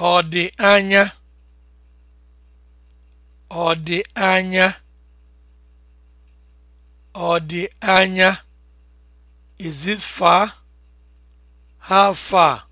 Ọ dị anya? Ọ dị anya? Ọ anya? Is it far? How far?